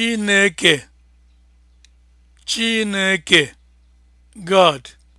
Chineke Chineke God